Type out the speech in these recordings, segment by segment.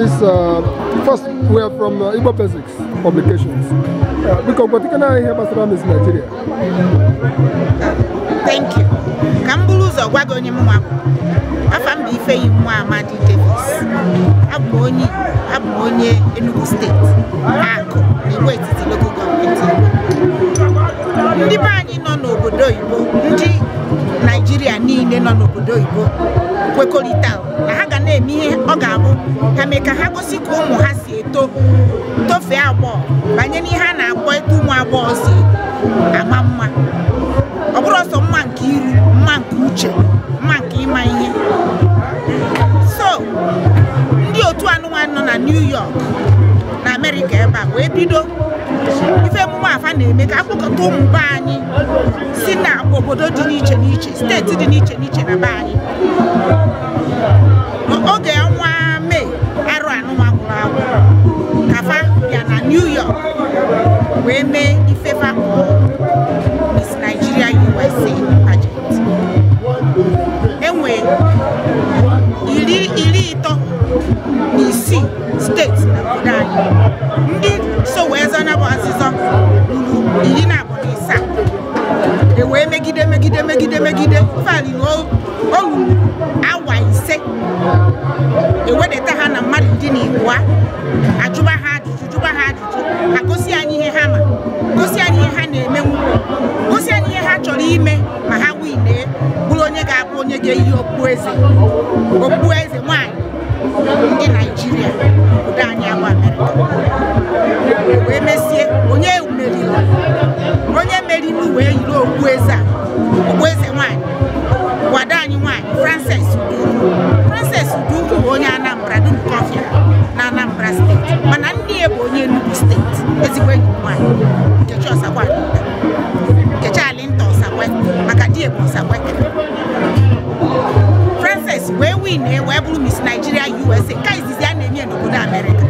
This uh, first we are from uh, Igbo Basics Publications. Uh, biko gbatikana ihe gbasara Miss Nigeria. Thank you. Ka m bụrụ ụzọ gwa gị onye mụnwa bụ. bụ Ifeyi Nwa Amadi Davis. Abụ m onye Enugu steeti, Akụ, Igwe ka ha gosi ka ụmụ ha si eto tofee agbọghọ banye n'ihe a na-akpọ eto ụmụ agbọghọ si ama mma ọ bụrụ ọsọ mma nke iri mma nke uche mma nke ịma ihe so ndị otu anụnwa nọ na New York na Amerịka ebe a wee bido ife emume afa na-eme ka akpọkọta ụmụ be anyị si na obodo dị n'iche n'iche steeti dị n'iche n'iche na be anyị Eme Ifevakuo Miss Nigeria USA pageant. Enwe iri iri ịtọ na isii na obodo anyị so wee zọna bụ azịzọ ruru iri na abụọ na ịsaa e wee megide megide megide megide fali na o awa ise ewedata ha na mmadụ ndị na igbo ajụba ha ajụjụ ha ajụjụ eze okpueze nwanyị ndị naijiria obodo anyị ama amerịka wee mesie onye meriri onye meriri wee yiri okpueze a na wee bụrụ Miss Nigeria USA ka izizi a na-enye n'obodo Amerịka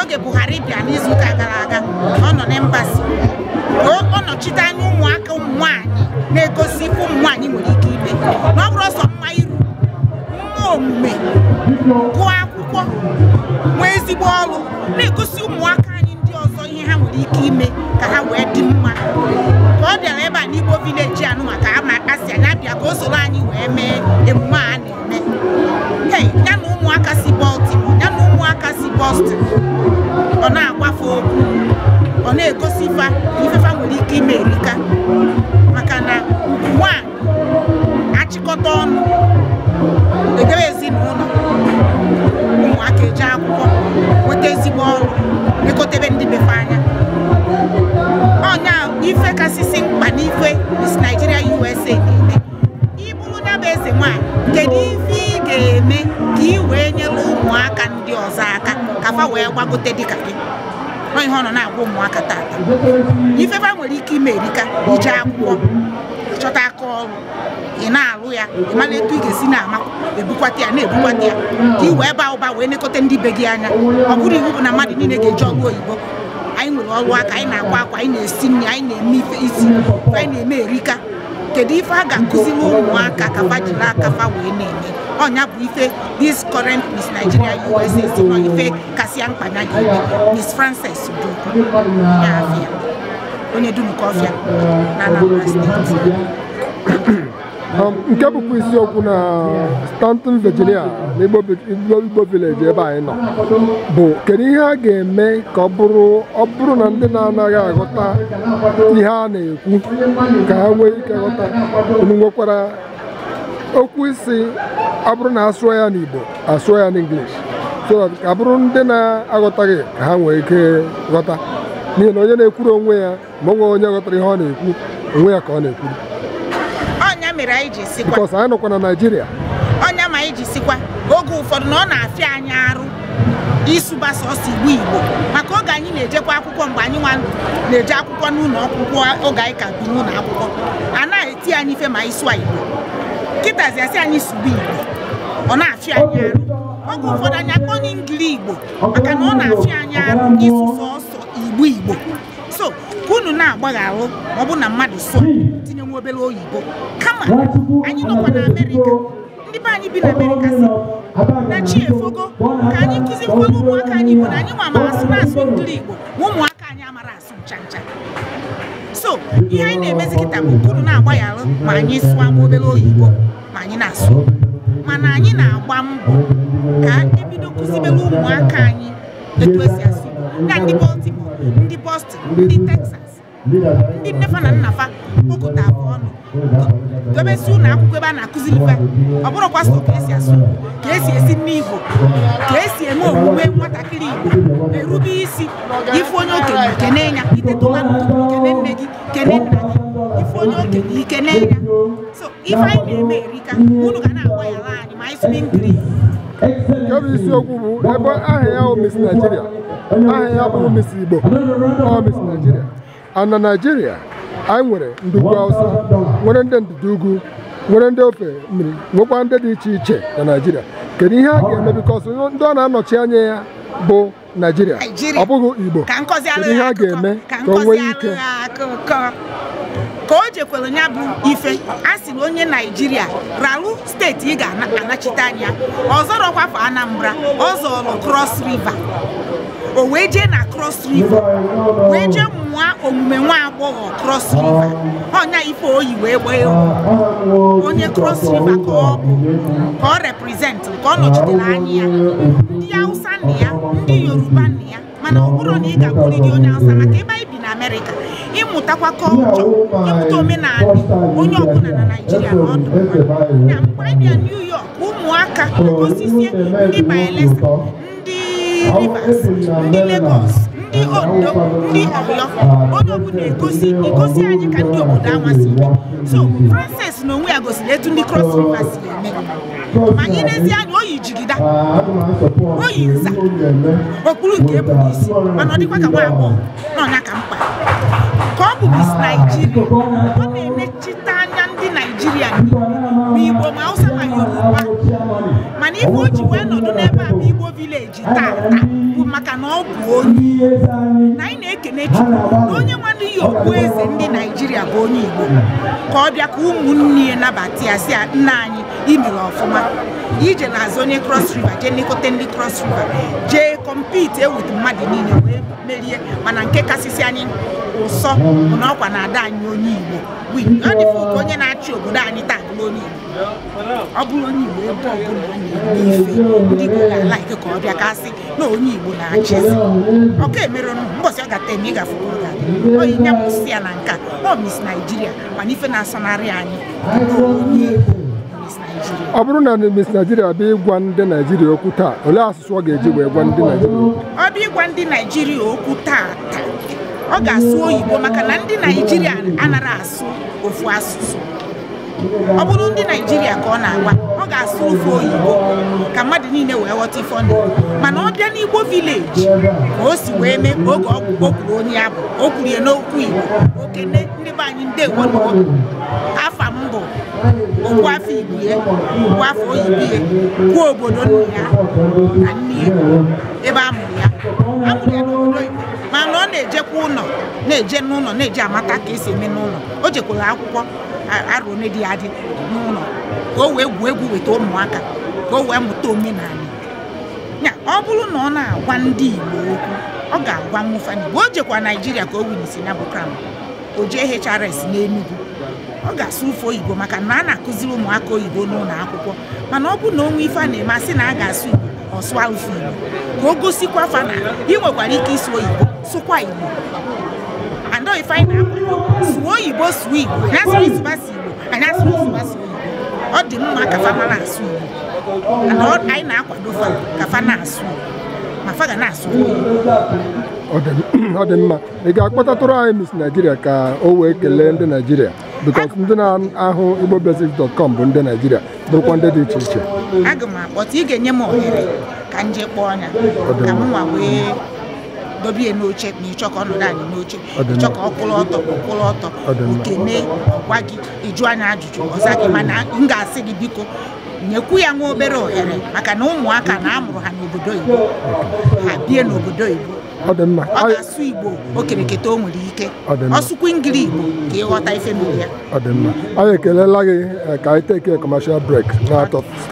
oge Buhari bịa n'izuụka gara aga ọ nọ na ọ nọchite anya ụmụaka ụmụ nwanyị na-egosi ụmụ nwaanyị nwere ike ime na ọ bụrụ ọsọ mma iru mma omume gụọ akwụkwọ nwee ezigbo ọrụ na-egosi ụmụaka anyị ndị ọzọ ihe ha nwere ike ime ka ha wee dị mma ka ọ dịara ebe a n'Igbo vileji anụ maka ama asị anya bịa ka o soro anyị wee mee emume anị nwanyị ya na ụmụaka si Baltimore ya na ọ na-agbafe okwu ọ na-egosi ife ifefa nwere ike ime erika maka na a achịkọta ọnụ edebe ezinụlọ ụmụaka eji akwụkwọ nweta ezigbo ọrụ lekọtebe ndị befe anya ife kasị afa wee gbagote dịka gị ihe ọ nọ na-agwa ụmụaka tata ifefa nwere ike ime erika iji akwụkwọ chọta aka ọrụ ị na-alụ ya ị mara etu ị ga-esi na-ama ebukwata ya na-ebukwata ya ka ị wee baa ụba wee nekọta ndị be gị anya ọ bụrụ iwu bụ na mmadụ niile ga-eji ọrụ oyibo anyị nwere ọrụ aka anyị na-akwa akwa anyị na-esi nri anyị na-eme ife isi anyị na-eme erika kedu ife a ga-akụziri ụmụaka ka fa jiri aka fa wee na-eme ọnya bụ ife this current Miss Nigeria USA si nọ ife kasịa mkpa na gị Miss Frances du ya onye dum nke ọfịa na Anambra steeti nke bụkwa isiokwu na Stanton Virginia na Igbo village ebe anyị nọ bụ kedu ihe a ga-eme ka ọ bụrụ ọ bụrụ na ndị na-anaghị aghọta ihe a na-ekwu ka ha nwee ike ghọta unu okwu isi ọ bụrụ na asụọ ya n'Igbo asụọ ya n'English so that ka bụrụ ndị na-aghọtaghị ka ha nwee ike ghọta n'ihi na onye na-ekwuru onwe ya ma ọ onye ghọtara ihe ọ na-ekwu onwe ya ka ọ na-ekwuru because anyị nọkwa na Naịjirịa ọnya ma anyị ji sikwa oge ụfọdụ na ọ na-afịa anyị arụ ịsụba sọsọ igbo igbo maka oge anyị na-ejekwa akwụkwọ mgbe anyị nwa na-eje akwụkwọ n'ụlọ akwụkwọ oge anyị ka bi n'ụlọ akwụkwọ a na-eti anyị ife ma ịsụ igbo nkịtazi asị anyị sugbo igbo ọ na-afị anyị arụ oge ụfọdụ anyị akpọ n'ingili igbo maka na ọ na-afị anyị arụ ịsụ sọsọ igbo igbo so ka unu na-agbagharụ ma ọ bụ na mmadụ so tinye nwa obere oyibo kama anyị nọkwa na amerịka ndị be anyị bi na amerịka si na chi ka anyị kụzi ụmụaka anyị igbo na anyị nwa ma asụ na-asụ ngili igbo ma ụmụaka anyị amara asụ ncha ncha so ihe anyị na-emezi kịta bụ agba na-agbagharụ ma anyị sụọ ma obere oyibo ma anyị na-asụ mana anyị na-agba mbọ ka ebido kụzibere ụmụaka anyị etu esi asụ na ndị Baltimore ndị Boston ndị Texas ndị nnefa na nnafa okụta abụ ọnụ dobesi ụlọ akwụkwọ ebe a na-akụziri ife ọ bụrụkwa so ka esi asụ ka esi esi nne igbo ka esi eme omume nwatakịrị igbo erube isi ife onye okenye ikene ya iteta ụla kene nne gị kene nna gị ife onye okenye ikene ya so ife anyị na-eme erika unu ga na-agba ya ala anyị ma anyị sụbi nkiri nke bụ isiokwu bụ ebe aha ya bụ Miss Nigeria aha ya bụ Miss Igbo ọ Miss Nigeria a na naijiria anyị nwere ndugwu ugwu awụsa nwere ndị ndịda nwere ndị ofe mmiri nwekwa ndị dị iche iche na naijiria kedu ihe a ga-eme bikọs ndị ọ na-anọchi anya ya bụ naijiria ọ bụghị igbo kedu ihe a ga-eme ka o nwee ike ka o jekwelu nya bụ ife a sịrị onye naijiria ralu steeti ị ga-anachite anya ọzọrọkwafọ anambra ọ zọrọ Krọs Riva. o wee jee na Krọs Riva, wee jee mụọ omume nwa agbọghọ cross riva ọnya ife oyi wee gbee onye Krọs Riva ka ọ bụ ka ọ represent ka ọ nọchitere anya ya ndị hausa nna ya ndị yoruba nna ya mana ọ bụrụ na ị ga-akwụrịrị onye hausa maka ebe anyị bi na amerịka amụtakwa kọlchọ ịmụta omenala onye ọbụla na naijiria na ọdụ na mgbe anyị bịa new york ụmụaka gosisie ndị bayelsa ndị rivers ndị lagos ndị ondo ndị ọyọ onye ọbụla egosi egosi anyị ka ndị obodo amasị so frances na onwe ya gosiri etu ndị cross river si eme ma anyị n'ezie anya oyi jigida oyi nza okpuru nke ebube isi mana ọ dịkwa ka nwa agbọghọ nọ na ka ọ bụ Miss Nigeria ọ na-emechite anya ndị Naijiria ma Igbo ma Hausa ma Yoruba mana ife o ji wee nọdụ n'ebe a Igbo vileji taata bụ maka na ọ bụ onye na anyị na-ekene Chukwu na onye nwanne ya okpu eze ndị Naijiria bụ onye Igbo ka ọ bịa ka ụmụnne ya nabata ya si nna anyị imere ọfụma ije na-azụ onye Cross River jee lekọta ndị Cross River jee kọmpiti e ewutu mmadụ niile wee merie mana nke kasịsị anyị ụsọ na ọkwa na ada anyị onye Igbo adịfụ onye na-achị obodo anyị taa bụrụ onye Igbo ọ bụrụ onye Igbo ebe ọbụla ọ na-egbu ife ndị Igbo ga-alaike ka ọ bịa kasị na onye Igbo na-achịzi ọka emerenụ mbọsị ọ gata eme ịgafere oge oyi nya si ya na nka ọ mis Naijiria mana ife na-asọnarị anyị onye Igbo ọ bụrụ na Miss Nigeria bịa ịgwa ndị Naijiria okwu taa olee asụsụ ọ ga-eji wee gwa ndị Naijiria okwu? Ọ bịa ịgwa ndị Naijiria okwu taa taa, ọ ga-asụ oyibo maka na ndị Naijiria anara asụ ofu asụsụ ọ bụrụ ndị Naijiria ka ọ na-agwa ọ ga-asụ ofu oyibo ka mmadụ niile wee ghọta ife ọnụ mana ọ bịa n'Igbo vileji ka o si wee mee oge ọgwụgwọ kwuru onye abụ o kwurie n'okwu Igbo okene ndị be anyị ndewo afọ kwuo afọ ibie kwuo afọ oyibie kwa obodo nna ya na nne ya ebe amụrụ ya amụrụ ya n'obodo mana ọ na-ejekwa ụlọ na-eje n'ụlọ na eje amata ka esi eme n'ụlọ o jekwara akwụkwọ arụ dị adị n'ụlọ ka o wee gwuo egwu weta ụmụaka ka o wee mụta omenala ya ọ bụrụ na ọ na-agwa ndị igbo okwu ọ ga-agwa mụfani mgbe o jekwa naijiria ka o winisi na bụ kram o jee hrs n'enugwu ọ ga-asụ ụfe oyibo maka na a na-akụziri ụmụaka oyibo n'ụlọ akwụkwọ mana ọ bụ na onwe ife a na-eme asị na a ga-asụ igbo ọ sụa ụfe igbo ka o gosikwa fa na ị nwekwara ike isi oyibo sụkwa igbo andọ ife anyị na-akwado sụọ oyibo sụọ igbo anyasụrụ ịsụbasụ igbo anyasụrụ ịsụbasụ oyibo. ọ dị mma ka fa na asụ igbo anyị na-akwado fa ka fa na-asụ ma fa ga na-asụ igbo ọ dị mma ị ga-akpọtatụrụ anyị Miss naijiria ka o wee kelee ndị Naijiria? because ndị na-ahụ igbo igbobasics.com bụ ndị naijiria. bụrụkwa ndị dị iche iche aga m akpọta ị ga-enye m ohere ka m kpọọ ya ka wee dobie n'oche na ịchọ ka ọ nọrọ anyị n'oche ịchọ ka ọ kwụrụ ọtọ kwụrụ ọtọ okene ọgwa gị ịjụ anyị ajụjụ ọza gị mana m ga-asị gị biko nyekwu ya nwa obere ohere maka na ụmụaka na amụrụ ha n'obodo Igbo ha bie n'obodo Igbo ọ dị mma ọ ga-asụ igbo okereketa o nwere ike ọsụkwa ngiri igbo ka ịghọta ife n'ụlọ ya ọ dị mma anyị ekelela gị eh, ka anyị teke kọmashal brek na-atọ